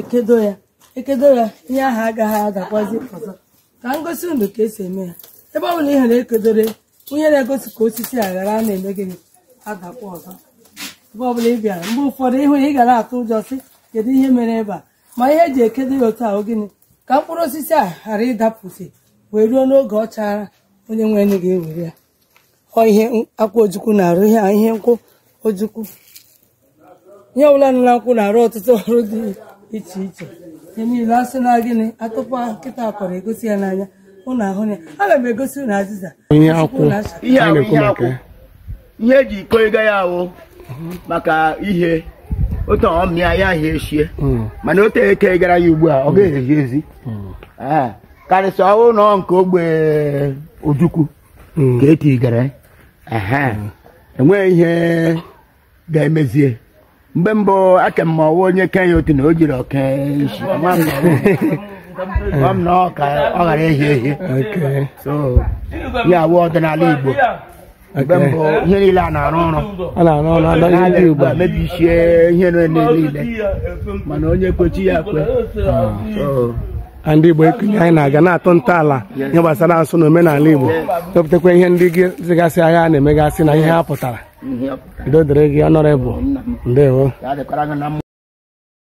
ekedo ya ekedo ya ihe ahụ agaghị adakwazi ọzọ ka m gosi ka esi eme ya ebe ọ bụla ihere ekedore onye na-egosi ka osisi a ghara a na-eme gịnị adakwa ọzọ ebe ọ bụla ị bịara mgbe ụfọdụ ịhụ ya ị gara atụ ụjọ sị kedu ihe mere ebe a ma ihe eji ekedo ya otu ahụ gịnị ka mkpụrụ osisi a ghara ịdapụsị wee ruo n'oge ọ chara onye nwe anyị ga-ewere ya ọ ihe akwa ojukwu na-arụ ihe ihe nkwụ ojukwu ihe ọbụla nọ na nkwụ na-arụ ọtụtụ ọrụ dị iche iche ihe niile asị na gịnị akụkọ nkịta akọrọ egosi ya n'anya ụnụ ahụ ya aga m egosi ụnụ azịza ihe eji e iko ego ya ahụ maka ihe otu ọmịa ya ahịa eshie hmm. mana o tere eke gara ya ugbu a ọ ga-ezi ezi hmm. ah, karịsịa ọhụụ nọ nke ogbe ojukwu hmm. ka etigara enweghị eh, eh, e ihe ga-emezie mgbe mbụ aka m ọwa onye kenya otu na o jiri m na ọ ghara ehi ehi ya awụ ọdịnala Igbo mgbe mbụ ihe niile a na-arụ ọrụ mebichie ihe niile mana onye kwechi ya kwe ah. ndị Igbo ekunye anyị na-aga na atọ ntọala ihe gbasara asụ na omenala Igbo chọpụtakwa ihe ndị gị zigasị a na-emegasị na ihe ha pụtara Ndị dịrị gị ọnọrọ bụ ndewo